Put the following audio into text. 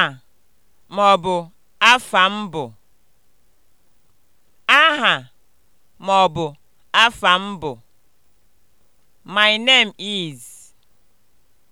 Aha bụ afa mbụ Aha ma ọ bụ afa mbụ bụ: My name is.